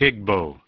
higbo.